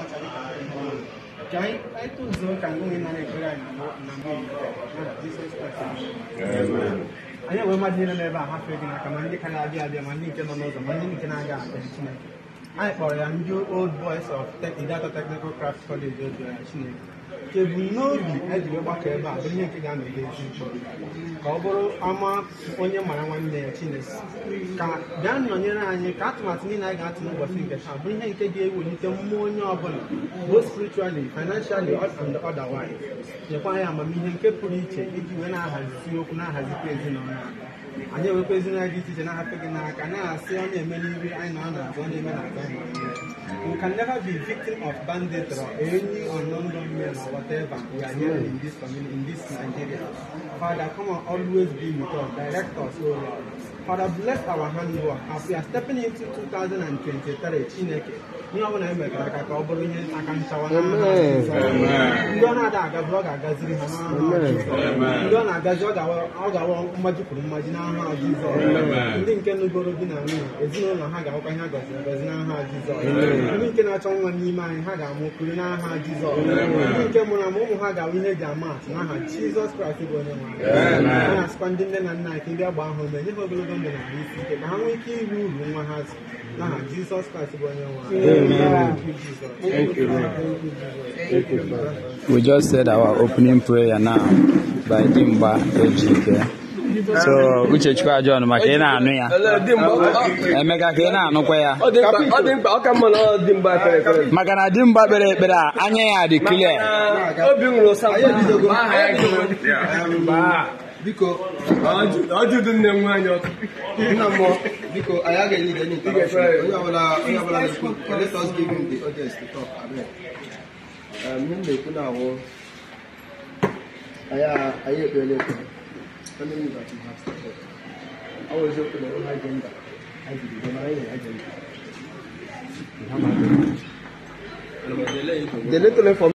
ọcha ka anyị nwe na-ekpere anyị enwe mmadụ niile n'ebe a hafee gị n'aka ma ndị ka na-abịa abịa ma ndị nke nọ n'ụzọ ma ndị nke na-aga aga Chineke anyị kpọrọ ya ndị old boys of Idato Technical Craft College ojuya Chineke ka n'obi ejiri gbakọ ebe a bụ ihe nke ga-anọgide echi ka ọ bụrụ ama onye mara nwanne ya chinesi ka bịa nọnyere anyị ka atụmatụ niile anyị ga-atụ n'ụbọchị nke taa bụ ihe nke ga-ewelite mmụọ onye ọbụla both spiritually financially and otherwise nyekwa ya amamihe nke pụrụ iche iji wee na-ahazi okwu na-ahazikwa ezinụlọ anyị anyị na dị iche iche na-ahapụ gị n'aka na-asị ọ na-eme n'ihu anyị na ọ anyi na na eme na We can never be victim of banditry or any unknown gunmen or whatever we are here in this community, in this Nigeria. Father, come on, always be with us, direct us, O Lord. Father, bless our handwork as we are stepping into 2023 Chineke ihe ọbụla e megara aka ka ọ bụrụ ihe aka nchawa ndị ọ na-ada aga ọ ga-agaziri ha ndị ọ na-agazi ọ ga-awa mmaji mmaji n'aha jizọ ndị nke nụgoro di na nwunye ezinụlọ ha ga-awụkwa ihe a gọziri n'aha Jizọs ndị nke na-achọ nwa n'ime anyị ha ga-amụ okpuru n'aha Jizọs ndị nke mụrụ ama ụmụ ha ga-awụ ihe eji ama atụ n'aha Jizọs Kraịst bụ onye nwe a na-asịkwa ndị nne na nna anyị ka ndị ọgba ahụ mee nye ha ogologo omenala isi ike ka ha nwee ike uru nwa ha n'aha Jizọs Kraịst bụ onye We just said our opening prayer now by Dimba Ejike. so uchechukwu John, maka ị na-anụ ya emeka ka ị na-anụkwa ya maka na dimgba kpere ekpere a anya ya dị clear biko ọjụjụ nne m nwaanyị ọkụ nna mmụọ biko anyị agaghị ige n'ike onye ọbụla onye ọbụla na-ekwu let us give him the audience to talk amen ihe m na-ekwu na awụ anyị ekpere ekwe onye m that you have started ọ bụ eziokwu na ụlọ agenda ajibido na anyị agenda The little information.